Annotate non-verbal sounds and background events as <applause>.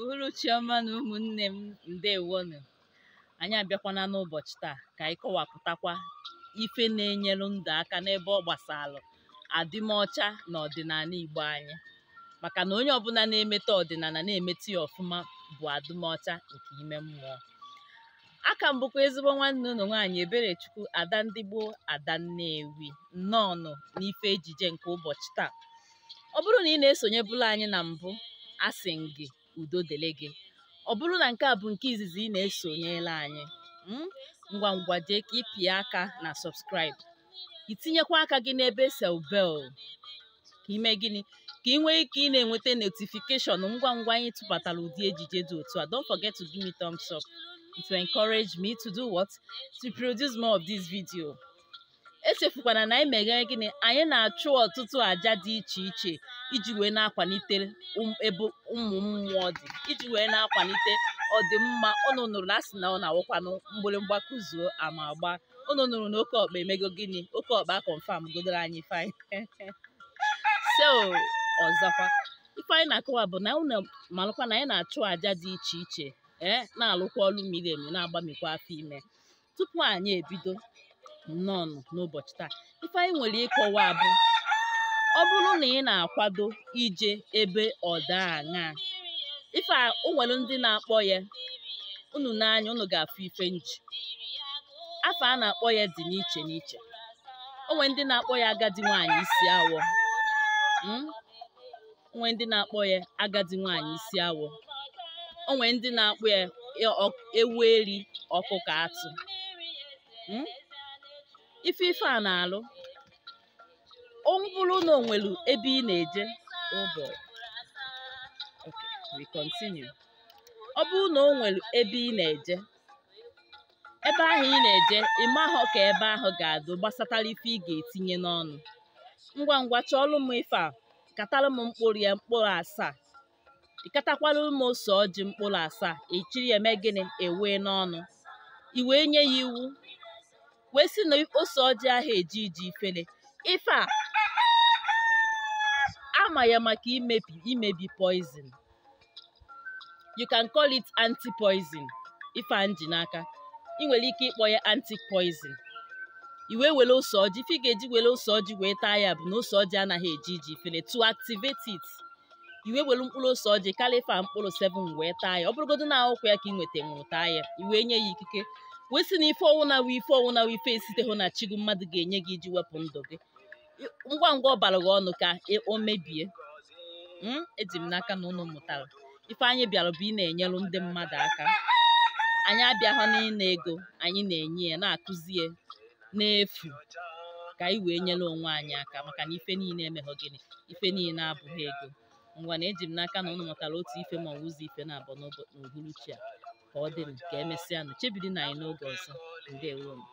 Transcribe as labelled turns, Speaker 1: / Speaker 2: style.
Speaker 1: uhuruchioma na ụmụnne m ndewonu. Anyị abịakwana n'ụbọchị taa ka anyị kọwapụtakwa ife na-enyelu ndụ aka n'ebe ọ gbasalụ adịmọcha na ọdịnala Igbo anyị maka na onye ọbụla na-emeta ọdịnala na emetụ ya ọfụma bụ adịmọcha nke ime mmụọ aka m ezigbo nwanne ụlọ nwaanyị Eberechukwu ada ndị gboo ada Nnewi nnọọnụ n'ife ejije nke ụbọchị taa ọ bụrụ na ị na-esonyebụla anyị na mbụ a sị gị udo dịrị gị ọ bụrụ na nke a bụ nke izizi ị na-esonyela anyị hmm, ngwa ngwa jee ka ịpịa aka na subscribe itinyekwa aka gị n'ebe sel bel ka ime gịnị ka ị nwee ike ị na-enweta notifikeshọn ngwa ngwa anyị tụbatara ụdị ejije dị otu a don't forget to give me thumbs up to encourage me to do what to produce more of this video echefukwana na anyị meghere gịnị anyị na-achụ ọtụtụ aja dị iche iche iji wee na-akwalite um ebe ụmụ mmụọ dị iji wee na-akwalite ọdịmma ụnụ nụrụ na asị na ọ na-awụkwanụ mgbịrịmgba kụzuo ama agba ụnụ nụrụ na oke ọkpa emego gịnị oke ọkpa kọnfam godoro anyị fain <laughs> so ọzọkwa ife anyị na-akọwa bụ na ụnụ malụkwa na anyị na-achụ àja dị iche iche ee eh, na-alụkwa ọrụ miri emi na-agbamikwa afọ ime tupu anyị ebido nnọọ n'ụbọchị taa ife anyị nwere ịkọwa abụ, ọ bụrụ na ị na-akwado ije ebe ọda aṅaa ife a onwere ndị na-akpọ ya unu n'anya unu ga-afụ ife nji afọ a na-akpọ ya dị n'iche n'iche onwe ndị na-akpọ ya agadi nwaanyị isi awọ hmm? onwe ndị na-akpọ ya agadi nwaanyị isi awọ onwe ndị na-akpọ ya ewu eri ọkụkọ atụ hmm? ife ife a na-alụ ọ bụrụ na o nwere ebe ị na-eje ọ bụrụ na o nwere ebe ị na-eje ebe ahụ ị na-eje ahụ ka ebe ahụ ga-adụ gbasatara ife ị ga-etinye n'ọnụ ngwa ngwa chọọlụ m ife a katara m mkpụrụ ya mkpụrụ asaa ịkatakwala m ose ọjị mkpụrụ asaa echiri ya eme gịnị ewee n'ọnụ i wee nye ya iwu wee sị na ose ọjị ahụ eji iji ifele ife a ama ya maka imebi imebi poison you can call it anti-poison ife anji n'aka ị nwere ike ịkpọ ya anti-poison iwe were ose ọjị ife ị ga-eji were ose ọjị wee taa ya bụ na ose ọjị anaghị eji iji ifele to activate it iwe were mkpụrụ ose ọjị kalifa mkpụrụ 7 wee taa ya ọ bụrụgodo na ahụkwa ya ka ị nweta nwụrụ taa ya iwe nye ya ikike kwesị na ife ọnwụ na wee ife ọnwụ na wee na chigụ mmadụ ga-enye gị iji wepụ ndụ gị ngwa ngwa ọ bara gị ọnụ ka o mebie hmm? eji m n'aka na ụnụ mụtara ife anyị bịara bụ ị na-enyelu ndị mmadụ aka anyị na ịna ego anyị na-enye ya na-akụzi ya n'efu ka anyị wee nyere onwe anyị aka maka na ife niile emeghọ gịnị ife niile abụghị ego ngwa na eji m n'aka na ụnụ mụtara otu ife ma ọ ụzọ ife na-abụ n'uhuruchi a ka ọ m ka emesịa nụ chebiri na anyị n'oge ọzọ ndewonu